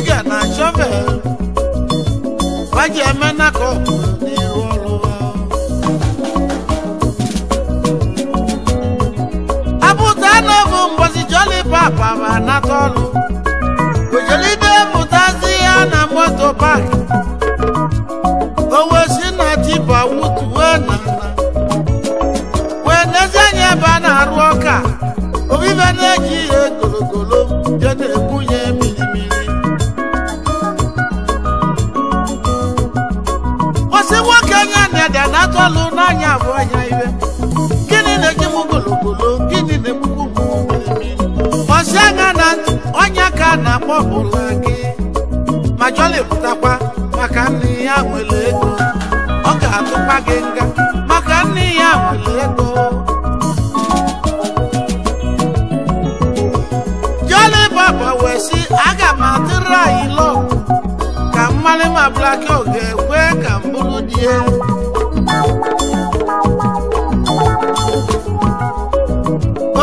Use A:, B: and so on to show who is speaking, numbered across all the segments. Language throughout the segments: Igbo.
A: digger na shovel waje eme na kọpụ n'iru ọrụ apụta n'obu mbosi joli papa na nata ọlụ ojolide pụtazi ya na moto pak owe si na tipa wutuwe na wee nezie anya na-arụ ọka obibe na agbapụla gị ma jọlịpụtakwa maka nne ya nwere ego ọ ga-atụkwa gị nga maka nne ya nwere ego jọlị baba wee sị aga m atụrụ anyị lọkụ ka ma blaki ọ ga-ekwe ka m bụrụ di ya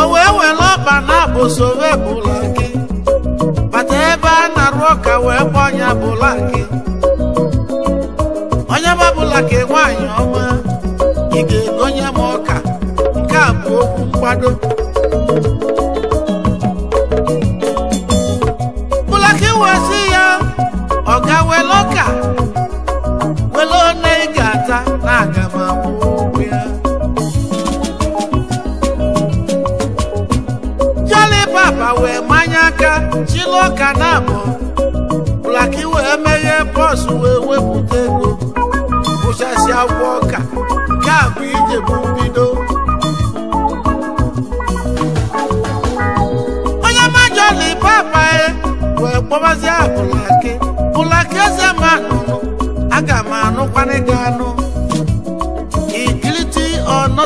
A: o wee were ọba na abụ sowe bụla arụ ọka wee gba onye bụla gị onye mabụla ka nwaanyị ọma ị ga-egonye m ọka nke a bụ okwu mgbado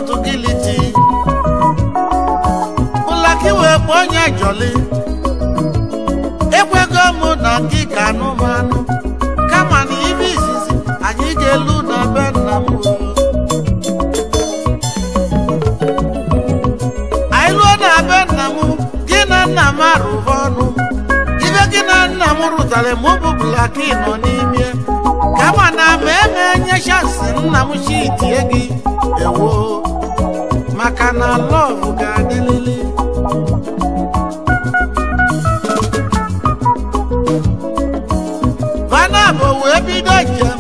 A: not guilty ụlaka iwee kpọọ onye jọli ekwego m na gị ka anụmanụ kama na ibe izizi anyị ga-elu na be nna m anyị luo na be nna m gị na nna m arụba ọnụ ibe gị na nna m rụtara ma ọ bụbụla ị nọ n'ime kama na ma eme nye chansi nna m chi gị ewo maka na lọvụ ga-adịlịlị vanab wee bido njem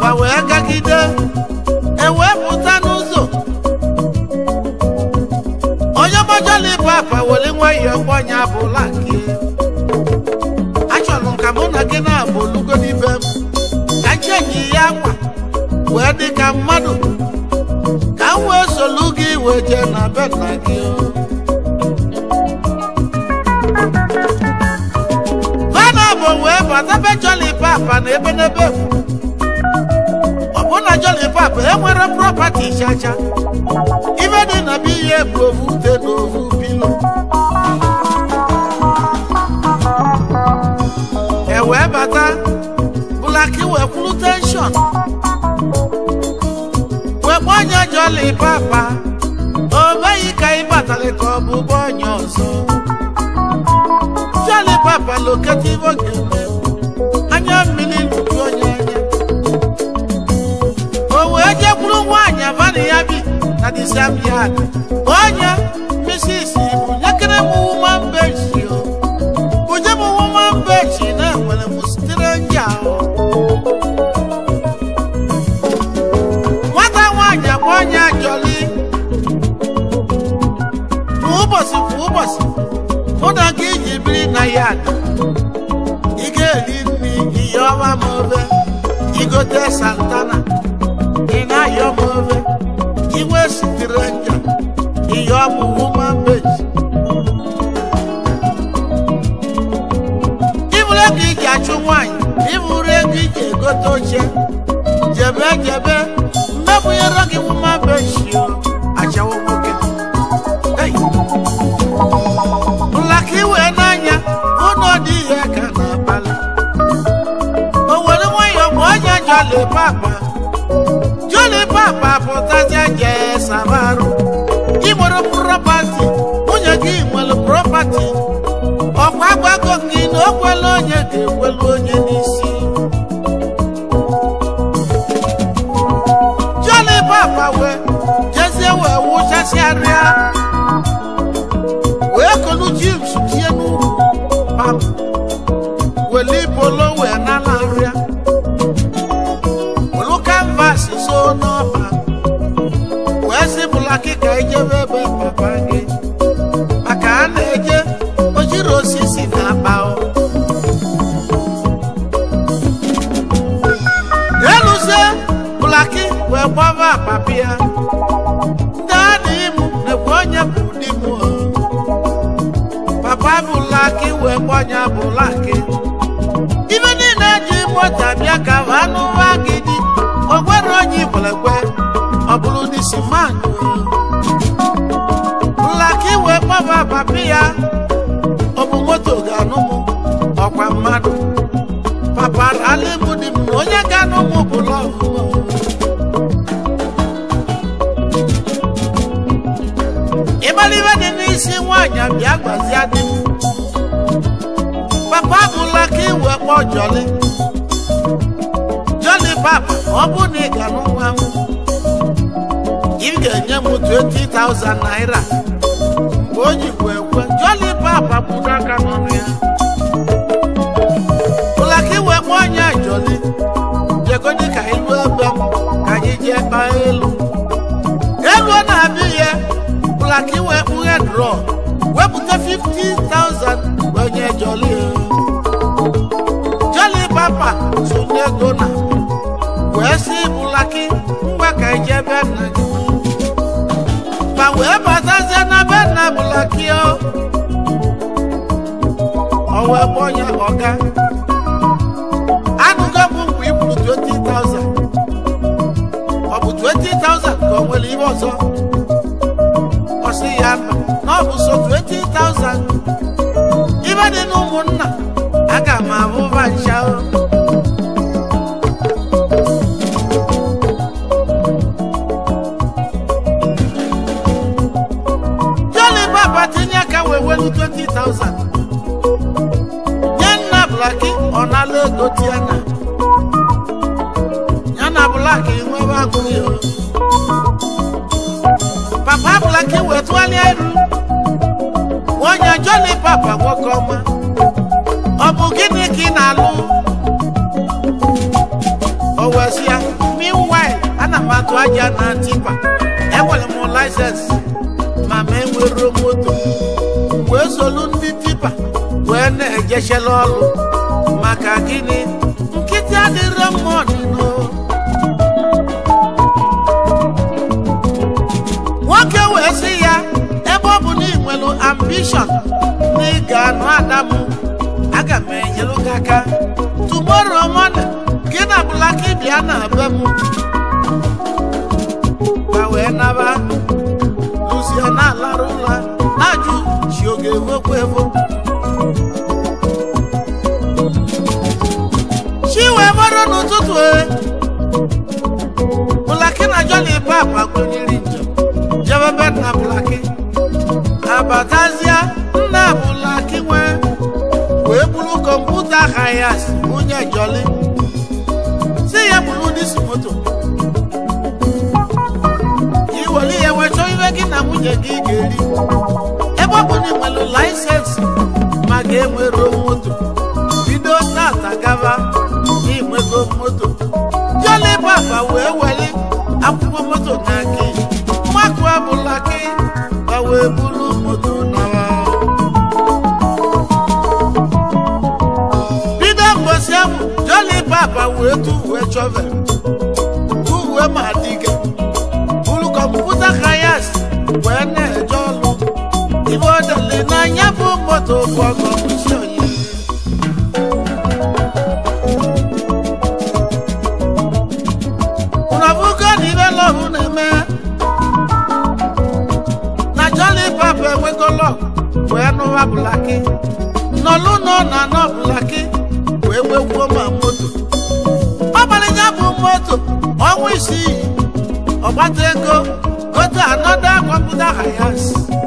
A: ma wee gagide ewee pụta n'ụzọ onye mojolibapa were nwayọọ gbọnya bụla nke achọrọ m ka mụ na gị na-abụ olugonibe m ka njenyi ya nwa wee dị ka mmadụ iwe jee na be nna gị vana bụ wee bata be joli papa na ebe n'ebe ọbụna joli papa enwere propati chacha ibe dị na be ihe bụ ovu ute na ovu e wee bata bụlaki e wee kwuru tenshọn wee gbanye joli papa Charlie Cobu Bonyoso Jale Papa Locativo Anya Mini Lugonya Owe Eje Kuru Nwanya Vani Yabi Adi Sambiada yard ị ga me, nri iyi ọma ma ofe igote santana ị na-ayọ ma ofe iwe sitere nja iyi ọbụ woman page ịbụrụ ego iji achụ nwaanyị ịbụrụ ego iji egote oche jebe jebe a gị woman page joli papa joli papa pụtazie jee sabarụ ị nwere propati nwunye gị nwere propati ọkwa agbago gị na o kwelu onye ga-ekwelu onye ọgbanye abụla gị ibe niile eji mọta bịa ka bụ anụ ụwa gị dị ogwere onye igbelegbe ọ bụrụ n'isi mmadụ nlaka iwe kpọba papi ya ọ bụ moto ga-anụ m ọkwa mmadụ papa alimu dị m na onye ga-anụ m bụ lọvụ dị n'isi nwaanyị bịa gbazie akpọ jọli jọli papa ọ bụ na ị ga n'ụwa m ị ga-enye m 20,000 naira mgbe o jikwa ekwe jọli papa bụ n'aka n'ọnụ ya ụlaka iwe nwa onye jọli jegodi ka ilu ebe m ka anyị jee kpaa elu elu na-abịa ya ụlaka iwe kpughe drọ wepụta 50,000 onye jọli sụnye gona wee si bụlaki ngwa ka ije be nna gị ma wee batazie na be nna bụlaki o wee onye ọga anụgo bụ mgbe ị kwuru 20,000 ọ bụ 20,000 ka o nwere ihe ọzọ ọ sị ya na ọ bụ so 20,000 ibe dị na ụmụnna aga m abụ vancha ego tiana ya na blak nwebe agụghị papa blak wetụgharịa iru onye joni papa nwoke ọma ọ bụ gịnị ka ị na-alụ owezia oh, meanwhile ana atụ aja na tipa enwere m laisensị ma ma moto wee solu ndị tipa wena ejesela ọlụ maka gịnị nkịtị adịrọ mma ọdịno nwoke wee sị ya ebe ọ bụ na ị nwere ambishọn na ị ga-anụ adamụ aga m enyelu gị aka tumoro mọda gị na bụlaka ịbịa na be m ka wee naba luzie na-alarụ ụla ụtụtụ Blaki e. na Joni Pap njọ, njem jebebe na Blaki abatazie nna Blaki nwee wee bụrụ kọmputa hayas onye Joli si ya buru disi moto iwere ihe wee iwe gị na nwunye gị ga-eri ebe ọ bụ nwere laịsensị ma ga enwere wee tu wee chọvel tu wee ma dike buru kọmputa kayas wee na-eje ọlụ ibe odele n'anya bụ moto bọgọ kwụsị oyi ụnọbụgo na ibe agbata ego gote anọda gwapụta ya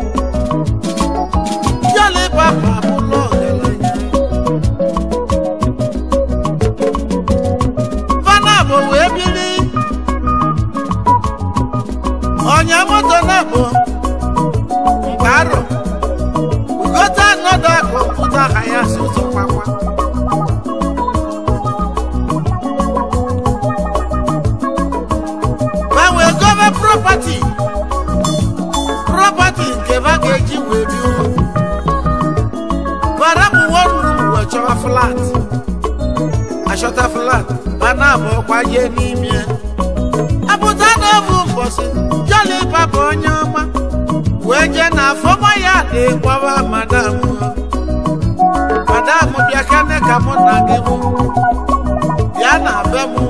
A: shota flat mana bụ ọkwa ihe n'ime ya apụta n'obu mbọsị jọli papa onye ọma wee jee na afọma ya na-ekwawa madam madam bịa kane ka mụ na gị mụ bịa na be mụ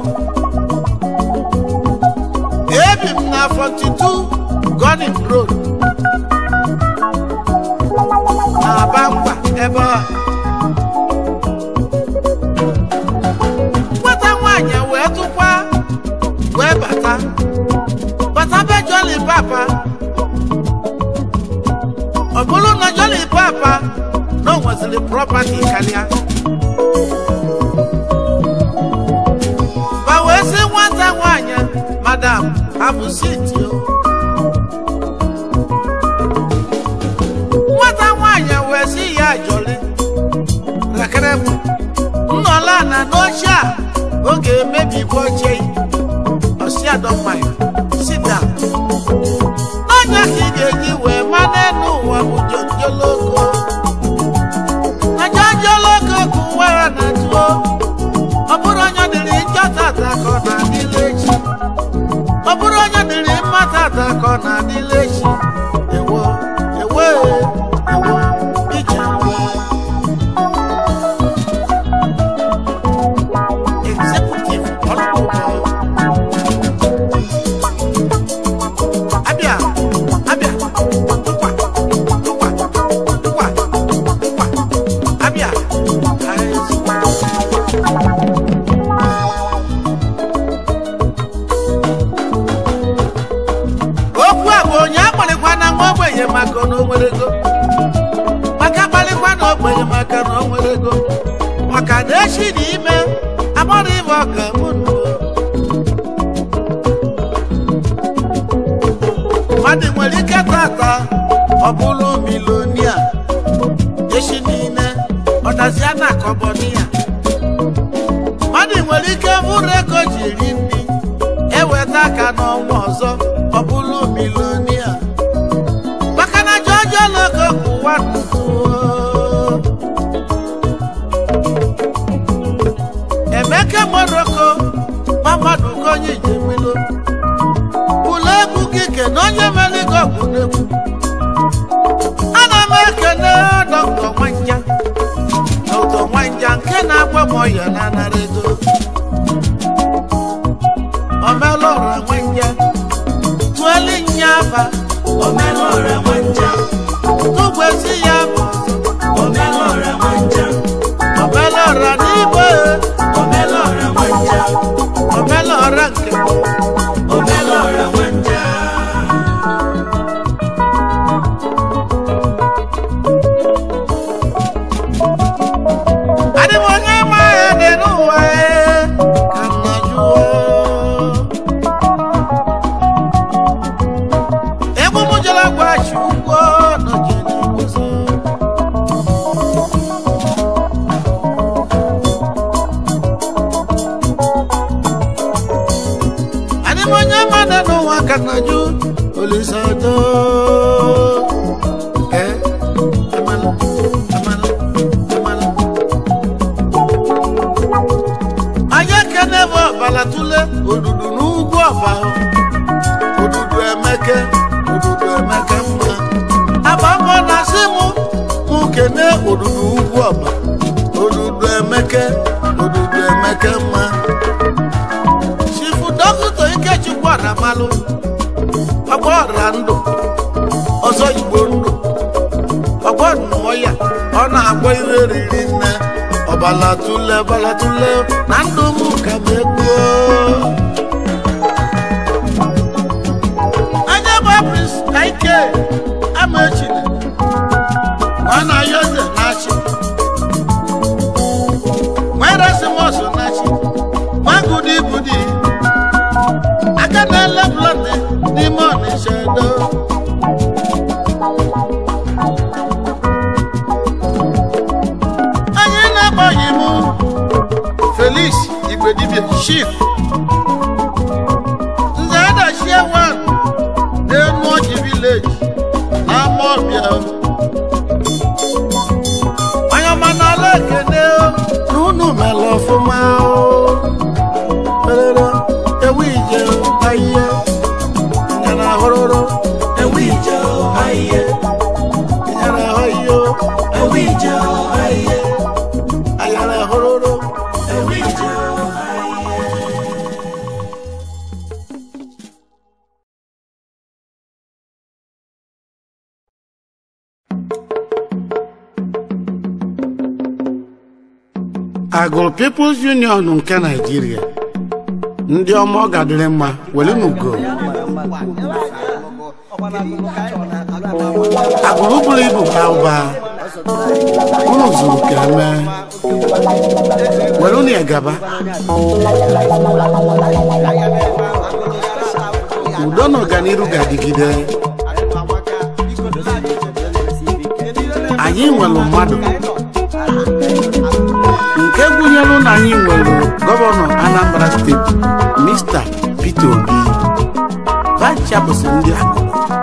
A: ebi m na 42 Gunning Road na Abangwa ebe a jolly papa ọgbọlọnà jolly papa náà wọ́n sì property kàlíà. báwo ẹ ṣe wọ́n madam abusiti o. wọ́n táwọn àyàn wẹ̀ sí ìyá àjọlé làkẹ́rẹ́ mu nnọ́lá àná ló ṣá oge mẹ́bí ¡Gracias! ọmọyọ nanara edo omelora nwenje tụọli nya aba omelora nwenje tụgwezi ya balatule balatule na ndụ m ka m ekpuo Chief Nze Adachie One n'Enuoji Village na Amawbia People's Union nke Naịjirịa ndị ọma ọ gadịrị mma were n'ugo agbụrụ buru ibu ka ụba unu zuru ka e were unu egaba udo na ọganiru ga-adịgide anyị nwere mmadụ nke gụnyere na anyị nwere gọvanọ Anambra steeti Mr. Peter Obi vice ndị akụkụ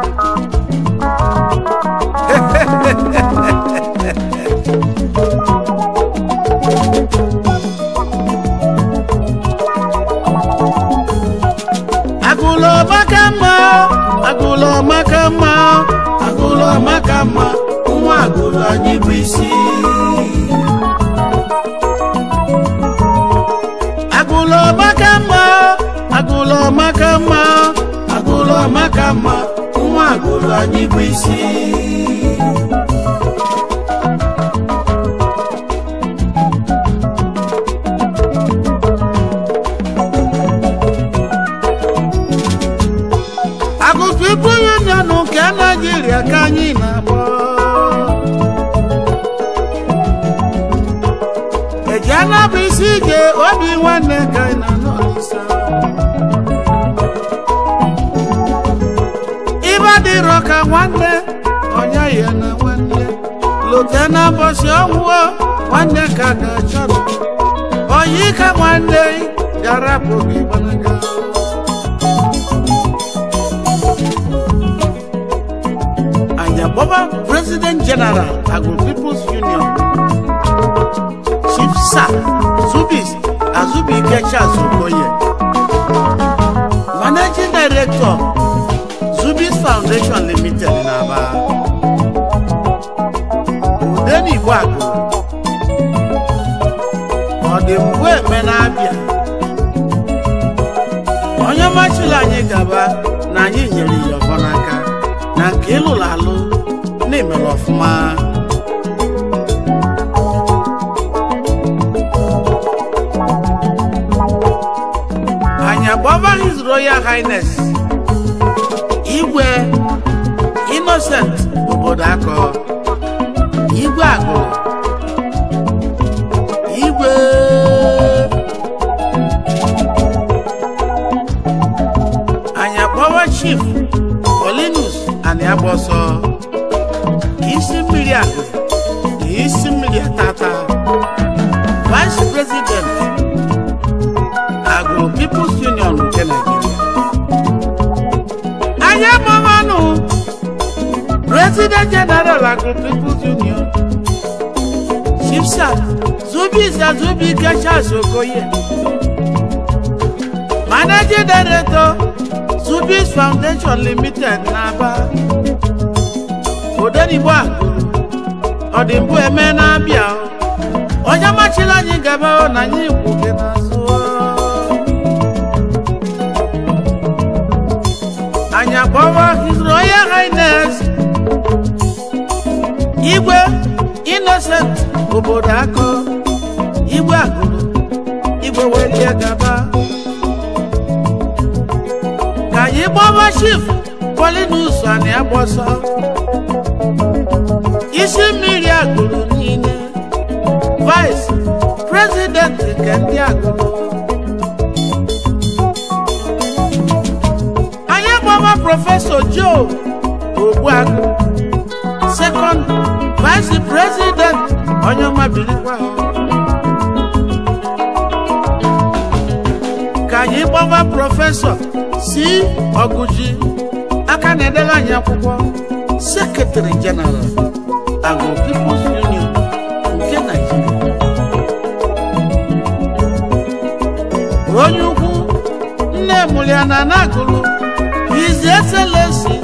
A: agụlọ maka mma agụlọ maka mma nwa agụlọ anyị bụ isi amaka mma nwa agụrụ anyị bụ isi site n'ụbọchị ọnwụọ nwanne ka na-achọ oyi ka nwanne bịara bụghị gbanaga anyabọba president general agro people's union chief sir zubis azubike charles okoye managing director zubis foundation limited na aba dị mgbe eme na-abịa onye machila anyị gaba na anyị nyere ya ọbọ n'aka na nke ịlụrụ alụ na-emere ọfụma anyị agbaba His Royal Highness igwe Innocent obodo akọ igwe agụrụ power chief Paulinus Aliagbọsọ kì í sí mmiri àgbẹ̀ kì sí mmiri àtàtà vice president Agro People's Union nke Nigeria anyị amụmanụ president general Agro People's Union chipsa zubiza zubi gachas okoye manager director Zubis Foundation Limited n'Aba Odenigbo Agulu ọdịmbụ eme na-abịa onye machila anyị gaba na anyị gwuke n'azụ Anya akpọwa His Royal Highness Igwe Innocent obodo akụ Igwe Agulu Igwe welie gaba Baba Chief Polynews ani Abosa isi mmiri agụrụ niile Vice President nke ndị agụrụ anyị agbawa Joe Obuagu, Second Vice President onye ọma birikwa ka anyị si ọgụji aka na-edere anyị akwụkwọ sekretari jeneral agụ Union nke Naịjirịa onye ukwu nne mụliana na-agụrụ His Excellency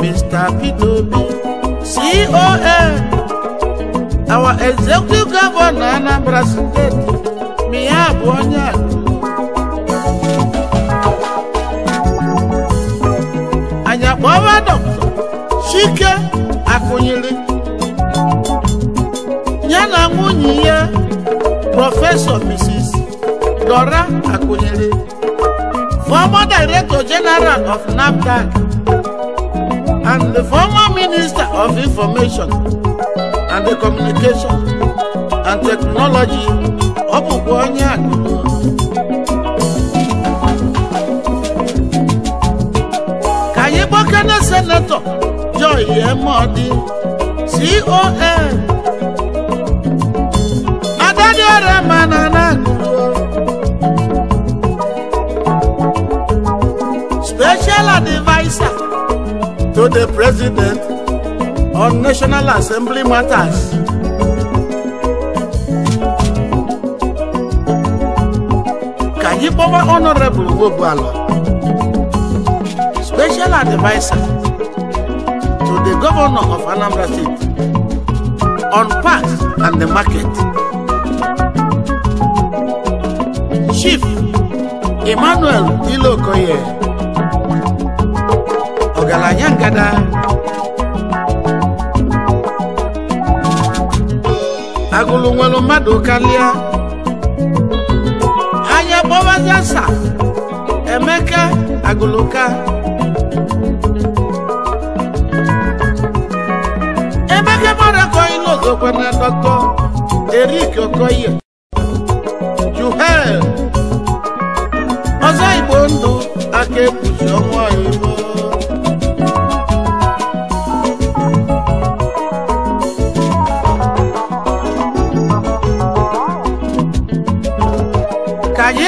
A: Mr. Peter Obi CON our executive governor Anambra State ma ya bụ onye a Nwadokto Chike Akụnyili ya na nwunye ya Prọfesọ Mrs. Dora Akụnyili former Director General of NAFDAC and the former Minister of Information and the Communication and Technology ọ bụkwa onye akụ senetọ Joy Emodi CON adadioremnananu special advisor to the president on national assembly matters ka anyị kpọwa honorable Ogbuala special advisor to the governor of Anambra State on parks and the market. Chief Emmanuel Ilokoye Ogalanya Ngada agụlụ nwere mmadu kalia anya kpọbazi sa Emeka agụlụka gobernador Dr. Eric Okoye, Juhel, ọzọ Igbo ndụ aka ebuzi ọnwụ anyị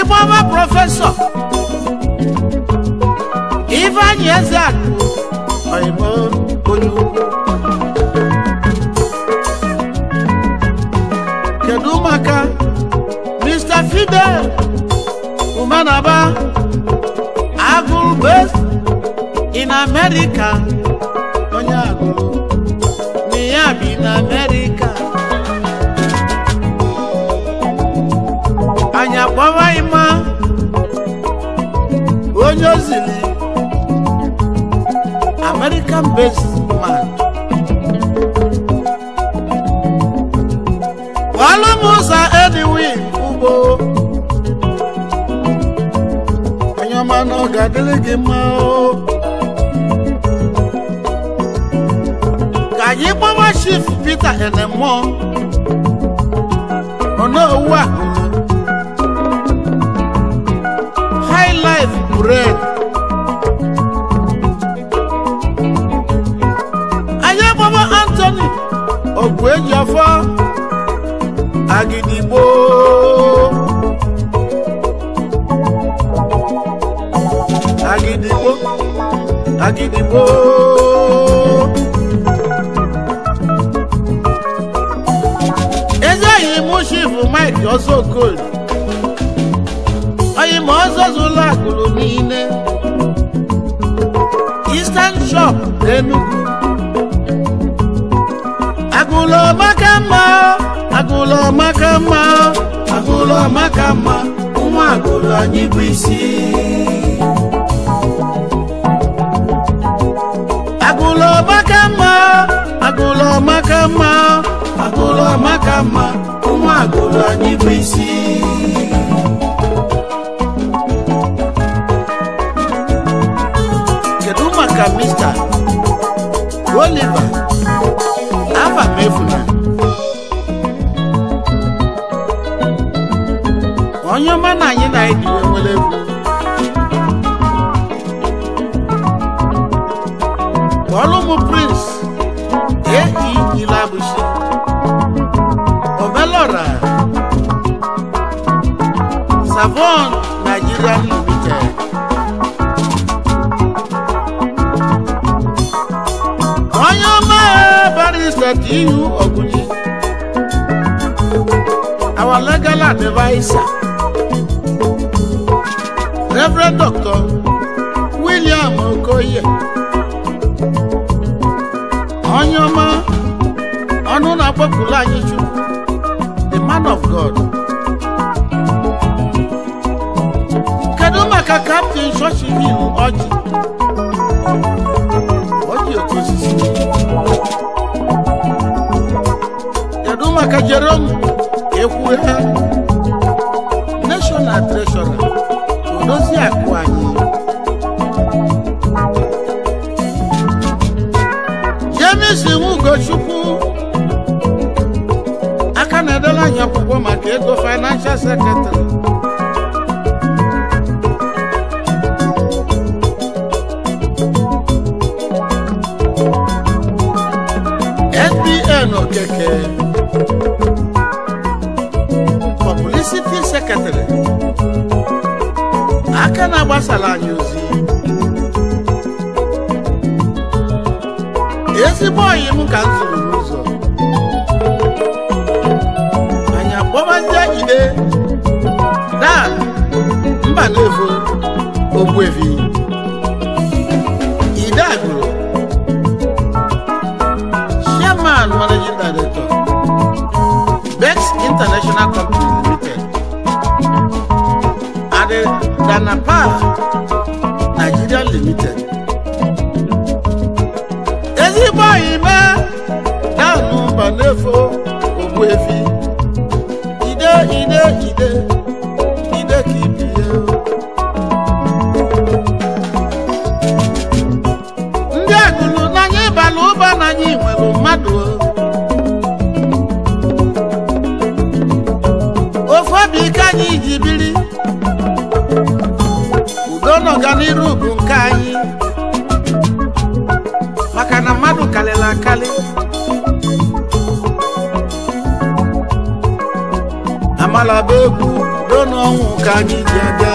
A: ka anyị Ade Umanaba agụụ based in America onye agụụ ya in na America anyị akpọwaghị ma onye ozili American based man ọlụmụzọ ọ̀gá délége mọ́ o. kàyí pọ́wọ́ chief peter ẹ̀nẹ̀mọ́ ọ̀nà owó àkùnú high life bread. ayé pọ́wọ́ anthony ògùn èjì ọ̀fọ́ àgìdìgbò. agídìmbo. ezeyi mushifu mike ọsọkol oyimo ọzọzụlọ agụrụ niile eastern shop enugu agụlọ maka mma agụlọ maka mma agụlọ maka mma ụmụ agụlọ anyị bụ isi makama agolo makama ụmụ agolo anyị bụ isi kedu maka mista oliva afa m onye ọma na anyị na-ediwe nwere egwu Savon Nigeria Limited. Oyoma Barrister T.U. Ogunyi. Our legal adviser, Reverend Doctor William Okoye. Oyoma Ọnụna Kpọpụla Anyịchukwu, the man of God. ka kaptịn chọọchị hil ọjị ọjị otu osisi kedu maka Jerome ekwue ha nashọnal treshọra odozi akụ anyị James Ugochukwu aka na-edela anyị akwụkwọ maka ego financial secretary Eno Keke, Publicity Secretary, aka na-agbasara anyị ozi ezigbo ọyị m ka m zụrụ n'ụzọ anyị akpọbazie ide da mba na-evo ogbuevi International Company Limited. and Ade Danapa Nigeria Limited. Amalabe egwu udo n'ọnwụ ka anyị ji aga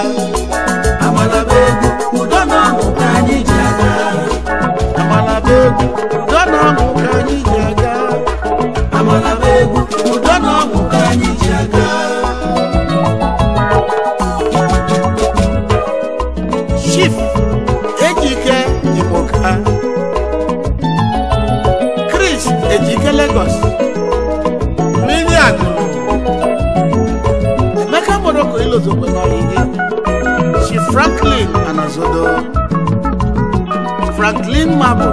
A: Amalabe egwu udo n'ọnwụ ka anyị ji aga Amalabe egwu gị chi Franklin Anazodo Franklin Mabụ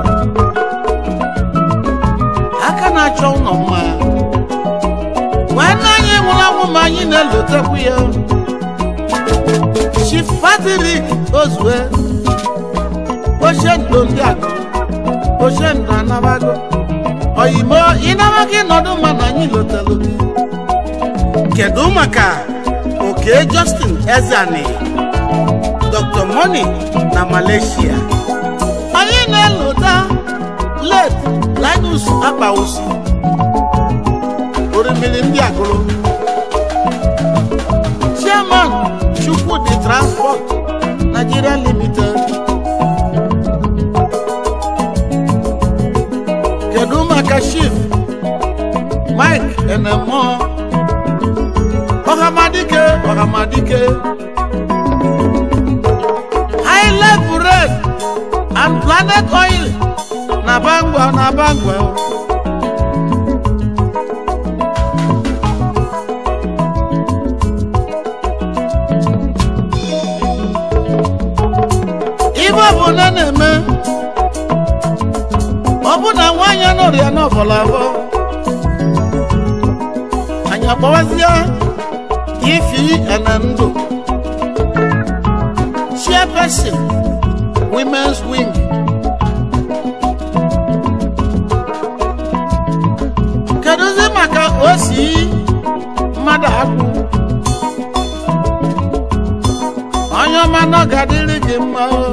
A: aka na-achọ ụlọ mma nwanne anyị nwụrụ anwụ ma anyị na-elotekwu ya chi Patrick Ozue ochie ndo ndị agụ ochie ndo anabago oyimo ịnabaghị nọdụ mma na anyị lotelu kedu maka J. Justin Ezani Dr. Money na Malaysia anyị na-elota let Linus Akpawusu orimiri ndị agụrụ Chairman Chukwudi Transport Nigeria Limited kedu maka chief Mike Enemor ọmọ adike. island bread and planet oil na bangwa na bangwa o. ibe na na-eme ọ bụ na nwaanyị anọrọ ya ahụ anyị akpọwazi ya GMMDO, Chairperson, Women's Wing. Kedụzi maka osi mmadụ akwụ? Onye ọma nọgadịrị gị mma o.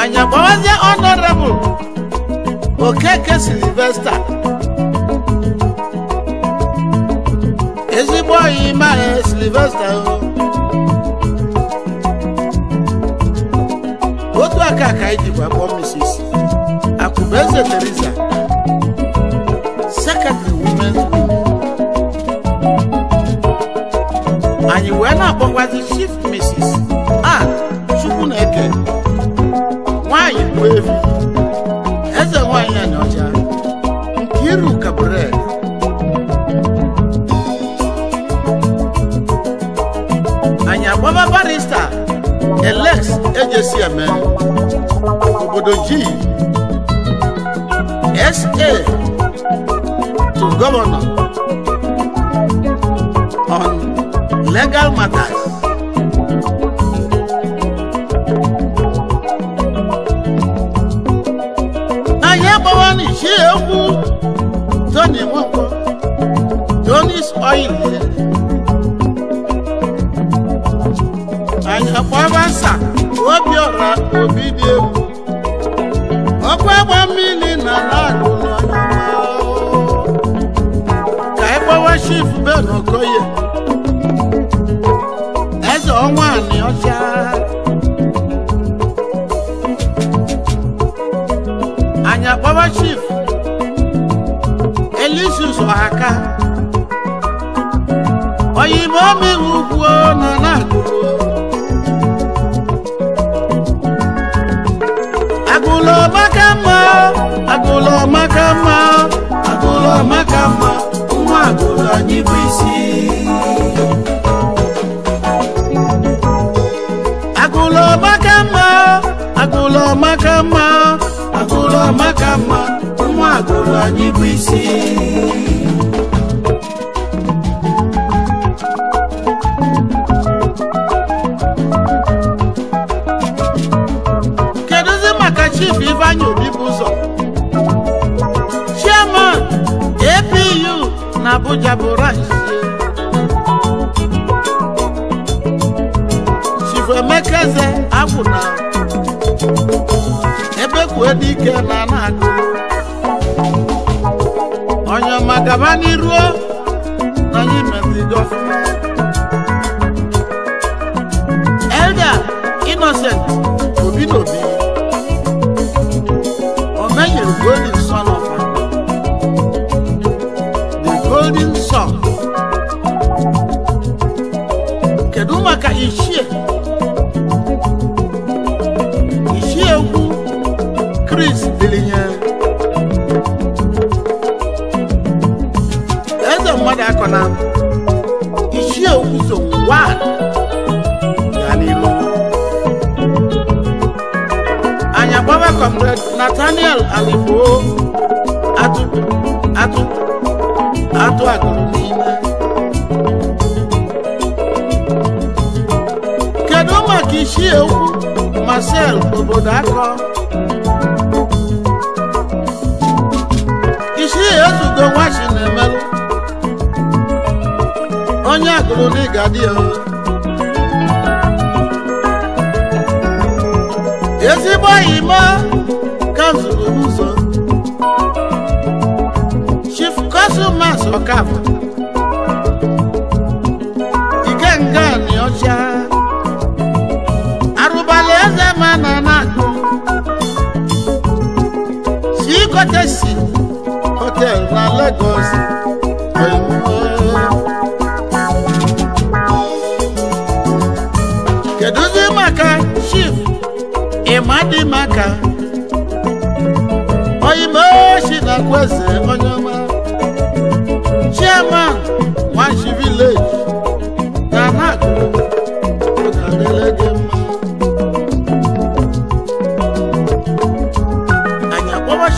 A: Anya gbawazie honorable Okeke Sylvester. ezigbo ọyị mara e, silivesta otu aka ka anyị jikwa kpọọ Mrs. Akwụbeze Teresa sekretrị women's group anyị wee na-akpọkwazi chief Mrs. a Chukwuneke nwanyị bụ evi former barrister elect AJCM obodo G SA to governor on legal matters. Ayé bọ́wọ́ ní ṣé ewu tó ní wọ́n ọkwa agbasa obi ọra obi dị egwu ọkwa agba mmiri na laagụ ka ịgbawa shif benokoye eze ọnwa anị ọcha anyị akpọwa chief, elisus ọhaka oyibo mmiri ugwu nọ na agụrụ agụlọ maka mma agụlọ maka mma agụlọ maka mma nwa agụlọ anyị bụ isi agụlọ maka mma agụlọ maka mma agụlọ maka mma nwa agụlọ anyị bụ isi Abuja bụ rice Chifu Emeka eze agwụna ebe kwue dike na na-agụ onye ọma gaba n'iruo na anyị metụrụ Marcel obodo akọ isi ezugo nwachi na-emelụ onye agụrụ n'ịga dị ya ezigbo oyima ka m zụrụ ụzọ chief kọsụmas ọkava kọ́tẹ̀sì ọtẹ ńlá Lagos ẹ̀mọ́. Keduzi Maka Chief Imadi Maka oyinbo ṣì nàkú ẹsẹ̀ ọ̀nà.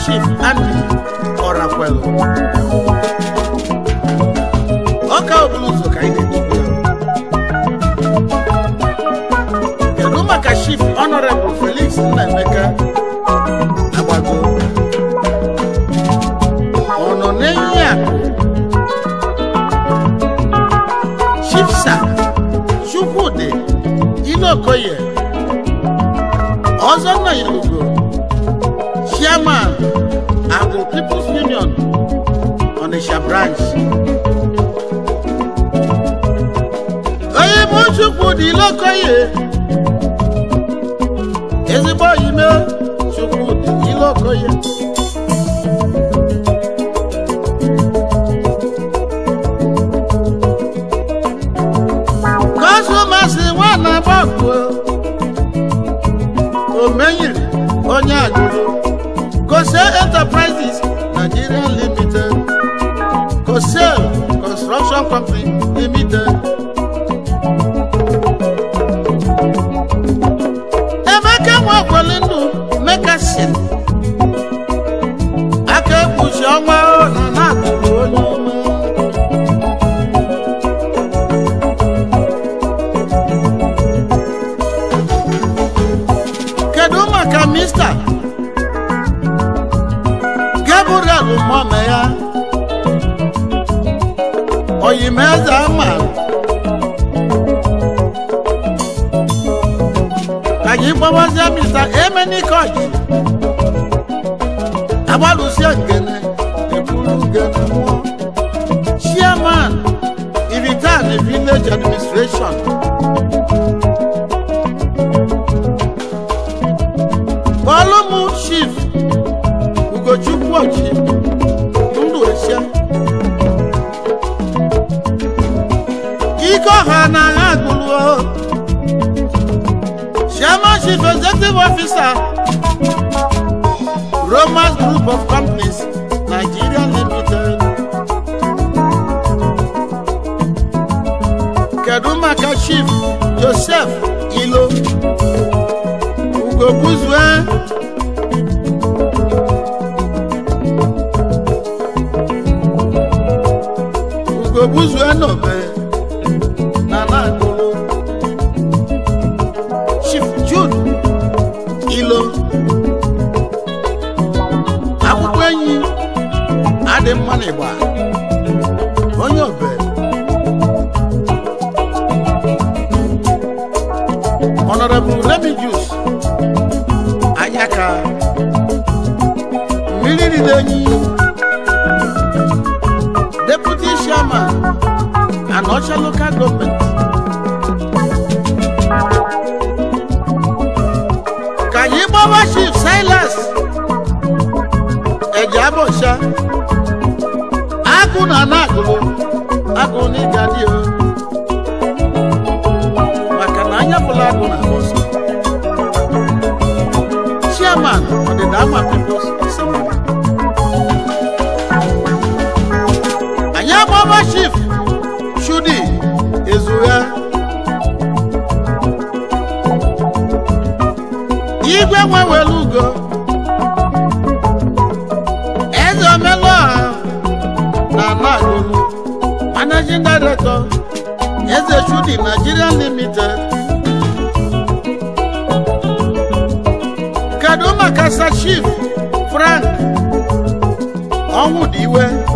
A: shift. I'm chairman the People's Union Onitsha branch. Onyemochukwu dị Ilokoye ezigbo ime Chukwu dị Ilokoye. Russian country. Onitsha local government ka anyị gbawa Chief Silas Ejiabọcha agụ na na-agụrụ agụ n'ịga dị na anyapụla agụ na bọsọ Chairman ọdịda amaka nwa were ugo eze omelụọha na nagolu managing director eze chudi nigeria limited kedu maka chief frank ọnwụdiwe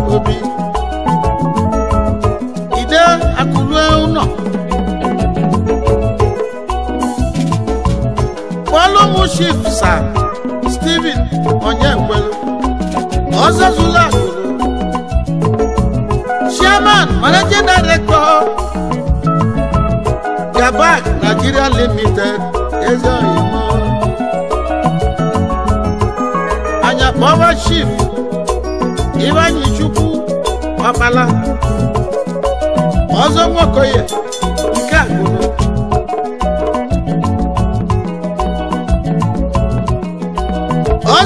A: Sam Steven Onyekwelu Ọzọzụla Chairman Managing Director Gabak Nigeria Limited Ezeoyimo Anya Power Chief Ivanyi Chukwu Ọkpala Ọzọ Nwokoye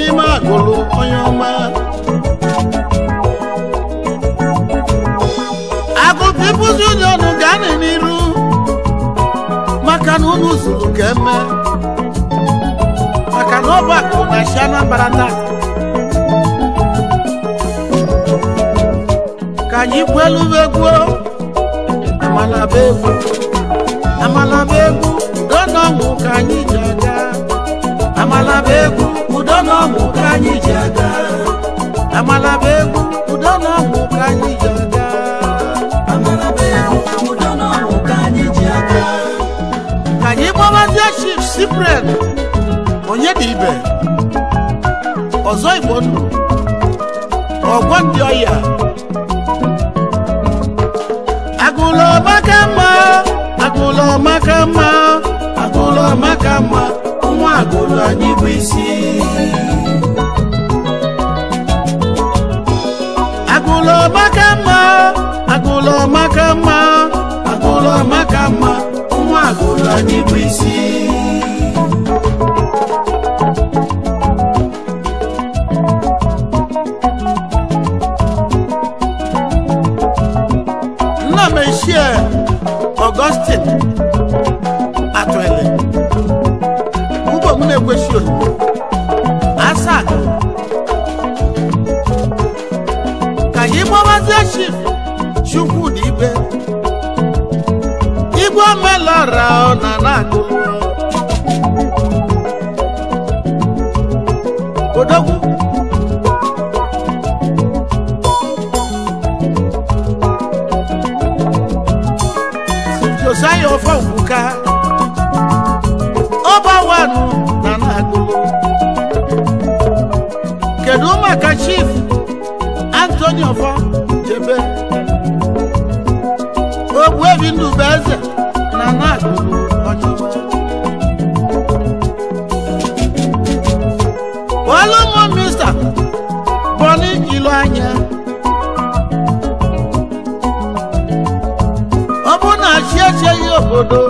A: n'ime agụlụ onye ọma akụkọ ịbụzi onye ọnụ ga-anị n'iru maka na unu zuru ka eme maka na ọ na chi Anambra taa ka anyị kwelu egwu amalaba egwu amalaba egwu ka anyị ji aga amala bụ egwu udo na ọgwụ ka anyị ji aga amala bụ egwu udo na ọgwụ ka anyị ji aga ka anyị gbawazie chief sipren onye dị ibe ọzọ igbo ndụ ọgwọ ndị ọya agụlọ maka mma agụlọ maka mma agụlọ maka mma akụlọ anyị bụ isi agụlọ maka mma agụlọ maka mma agụlọ maka mma nwa agụlọ anyị bụ isi ọ̀rà ọ̀nà náà kò lọ. Kòdókù. Jòsáyọ̀ fọ̀ òkúka. Ó bá wà nù nànà àgolo. Kèdú màkà chief Anthony Ọ̀fọ̀ Jebe. Ogbu ebi ndụ bụ eze lọ́jọ́ wájú. wọ́n ló mọ mísà bọ́ ní ìlú àyà. ọbụna chi echeghị obodo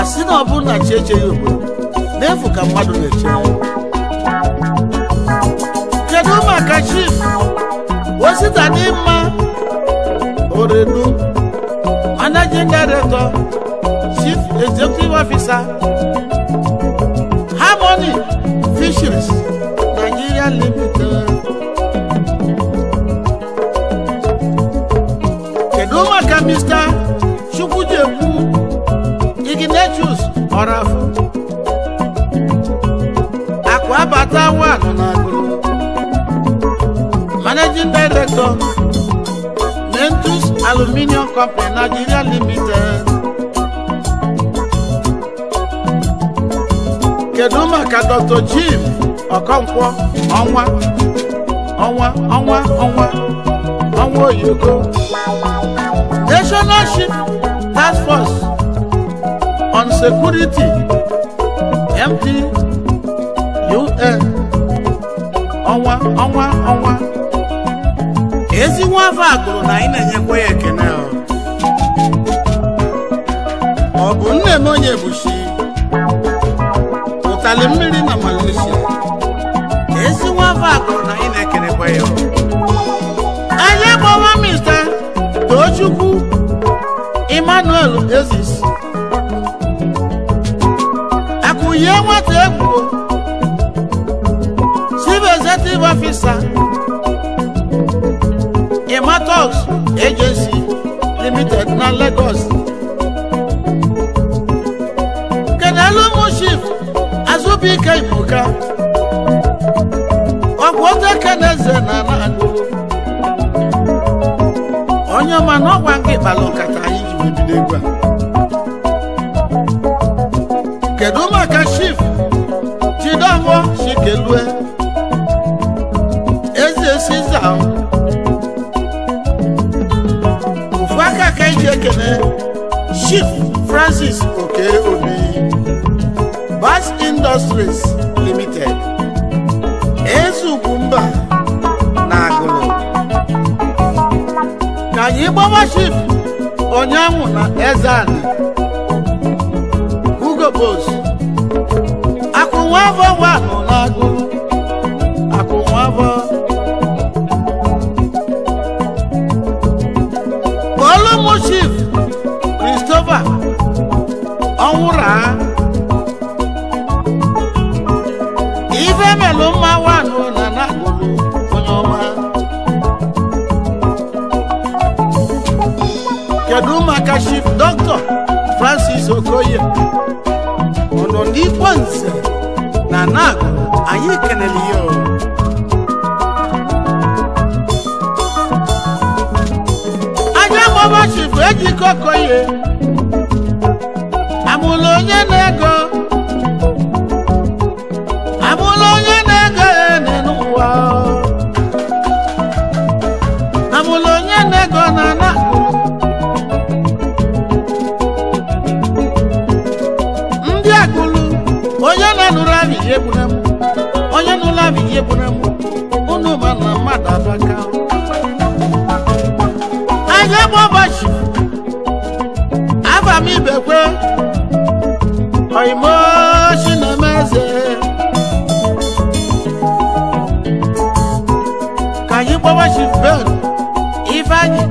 A: asị na ọbụna chi echeghị obodo n'efu ka mmadụ na-eche kedu maka chief osita n'ịma managing director chief executive officer harmony fisheries nigeria limited. kedu maka mr chukwujekwu ignatius orafu akụ abata nwa anọ na agụrụ managing director aluminium company nigeria limited kedu maka dr jim ọkọnkwọ ọnwa ọnwa ọnwa ọnwa ọnwa oyibo national ship task force on security md un ọnwa ọnwa ezi nwa afọ a na anyị na-enyekwa ya ekene ọ bụ nne m onye bushi ụtali mmiri na Malaysia ezi nwa afọ a na anyị na-ekenekwa ya anyị gbawa mista Tochukwu Emmanuel Ezis akụye nwata egwu chief executive Nematox Agency Limited na Lagos. Kedalumu Chief Azubike Ibuka ọgwụta keneze na Nagolo onye ọma na ọgwa nke ịkpala nkata anyị ji wee bido egwu a kedu maka Chief Chidomfo Chiekene, Chief Francis Obi, Bass Industries Limited, Ezukumba Nagolo. Ka anyị Chief Onyanwụ na Ezani, Hugo Boss, akụnwa afọ chief Christopher ọnwụra ife melụ mma wanụ na nakpụrụ onye ọma kedu maka chief dr francis okoye ọnọdụ ikpe nze na nakụ anyị kenele ya Ọmụma chifu ejikọ koye amụla onye na-ego amụla onye na-ego ene n'ụwa amụla onye na-ego na na ndị agụlụ onye na-anụrụ abịghị egbunemu onye nụrụ abịghị egbunemu unu ma na mmadụ abaka ebe ụbọchị afa m ibekwe oimoshi na-eme eze ka anyị gbawa shifben ifeanyị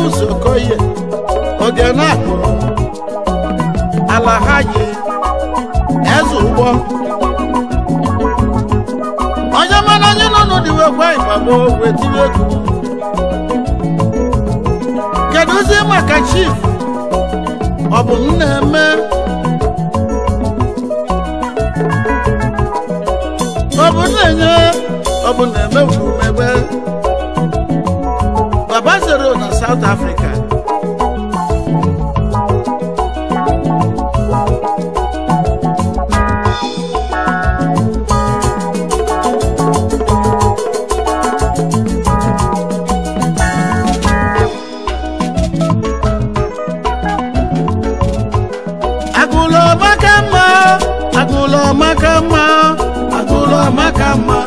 A: n'ụzọ koye oge na-akpọ ala ha yi eze ụgbọ onye mana anyị nọ n'ụdịwe gwa ịgbagbo wee tinye egwu ozi maka chief ọ bụ m eme ọ bụ na-enye ọ bụ na-emegbu megbe Lazaro na South Africa. Agụlọ maka mma, agụlọ maka mma, agụlọ maka mma,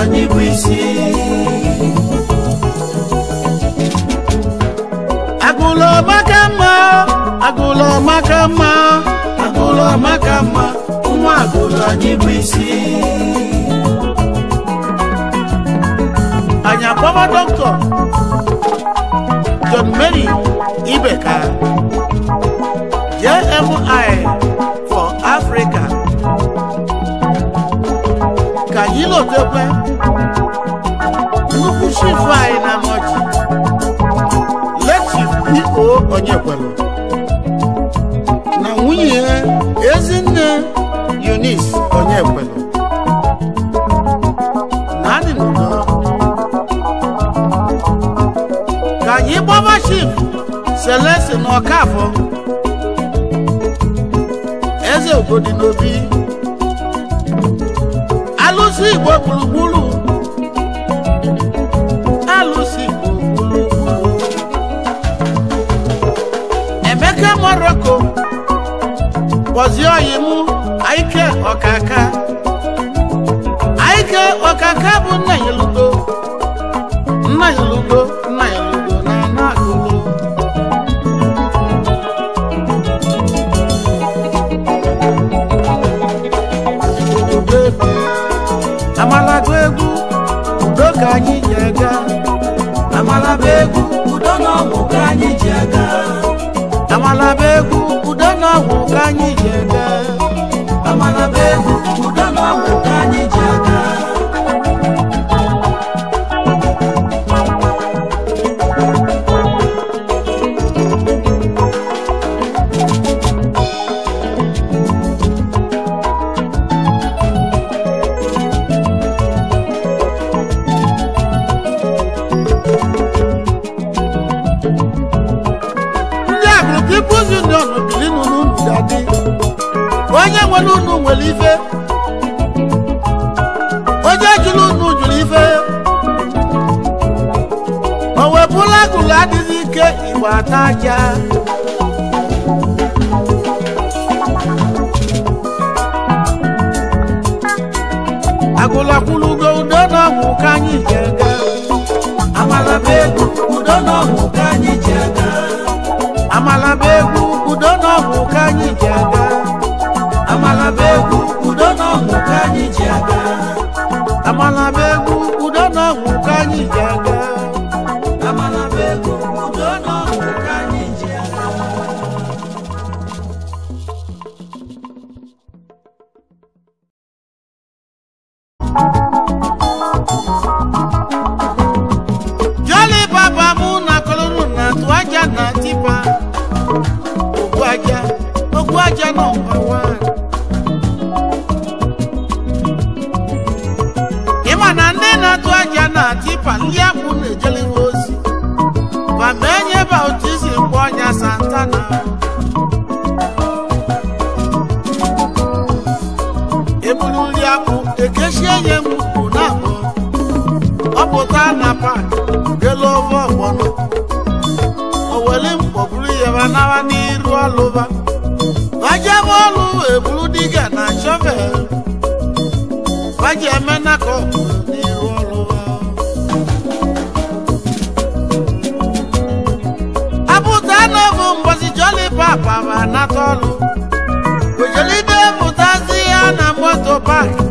A: anyị bụ isi. agụlọ maka mma agụlọ maka mma nwa agụlọ anyị bụ isi anyị akpọba dọkịta John Mary Ibeka JMI for Africa ka anyị lotekwe nnukwu chifu anyị na nọchi letif iko onye kwelu nwunye ha ezinne Eunice Onyekwelu naanị nọ ka anyị gbaba Chief Celeste na Ọkafọ eze Ugodi n'obi alụsị Igbo gburugburu Bọ̀sí Ọ̀yìnmú, Àyíké Ọ̀kàkà. Àyíké Ọ̀kàkà bụ nna ya lugbo. Nna ya Tonya Santana. Ebunuliamu ekeshie mu unabo. Ọpụta na pak gelo ovo ọgbọnọ. Owele mkpọburu yaba nawa n'iru alova Vajem ọlụ eburu diga na shọvel. Vajemena ka aka ọlụ wejelide mụtazi ya na moto paaki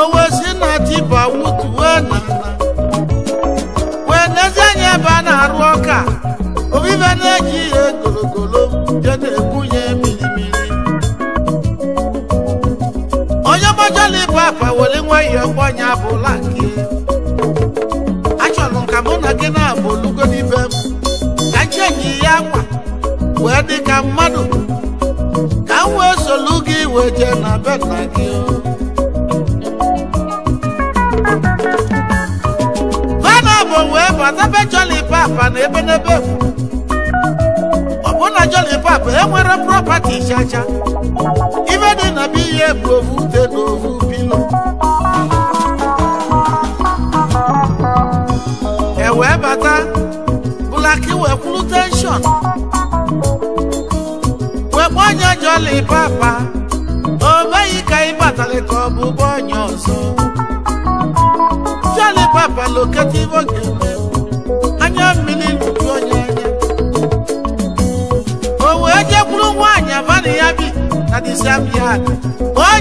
A: owosi na tiba wutuwe na wee nezie nye ebe a na-arụ ọka obibe na-eji ihe gologolo je na-ebunye mmiri. onye mojọlibụ apa were nwa ihe bụla ka dị ka mmadụ ka m wee solu gị weje na beta nna gị vana bụ wee bata be joli papa na ebe n'ebe ọ bụ na joli papa enwere propati chacha ime dị na ihe bụ ofu ali papa obayika ibatale kobu bonyoso Jale papa lokativo geme anya mmiri lụju onye anya o wee jekwuru nwaanyị abana abi bi na disabia o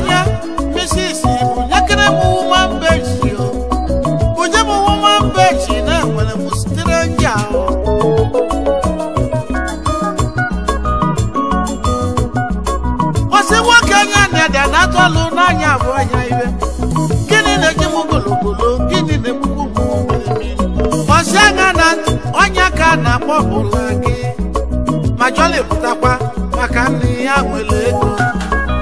A: ọbụla gị ma Jolly pụtakwa maka nne ya nwere ego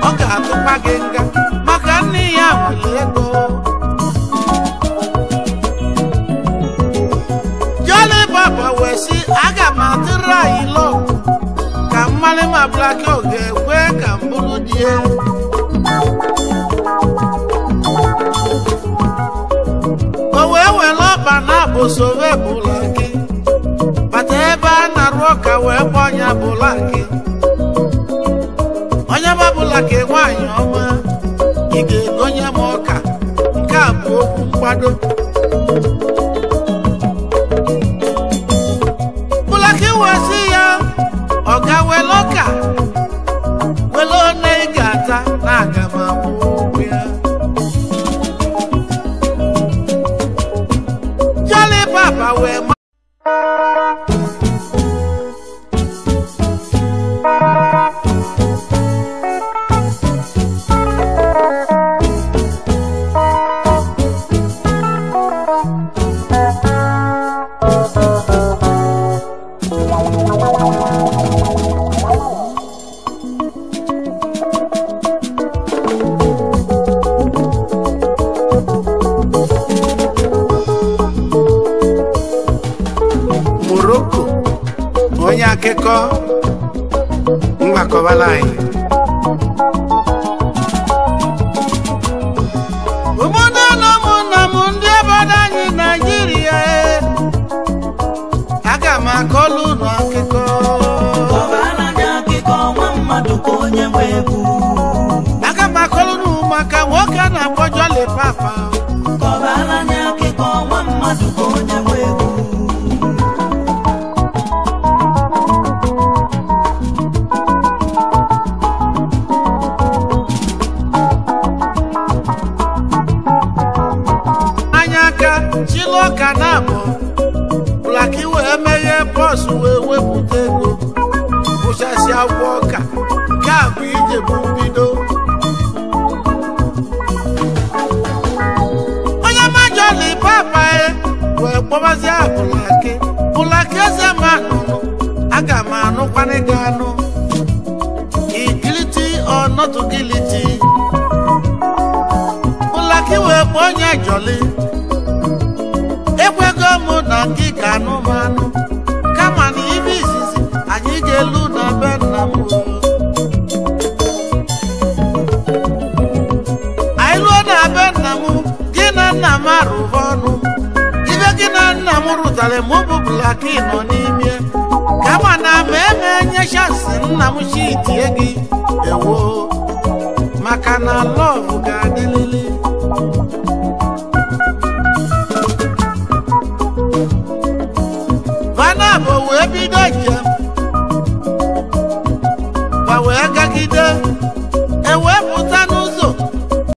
A: ọ ga-atụkwa gị nga maka nne ya nwere ego Jolly Baba wee sị aga m atụrụ anyị lọk ka mmalị ma Black Hawk ga-ekwe ka m bụrụ di ya o wee were ọkpa na abụsowebụla gị arụ ọka wee gba ọnya bụlaki onye babụlaki nwaanyị ọma ị ga-egonye m ọka nke a bụ okwu mgbado onye akụkọ mgbakọbala anyị obodo na ụmụnna m ndị obodo anyị naijiria e. aga m akọlụ ụlọ ka onye nwe egwu anụkwana gị anụ igiliti or not guilty wee kpọọ onye jọli ekwego mụ na gị ka anụ m anụ kama na ibe izizi anyị ga-elu na be nna m anyị lụọ na be nna m gị na nna m arụba ọnụ ibe gị na nna m rụtara mụ bụ blaki nọ n'ime nna m si tie gị ewo maka na lọ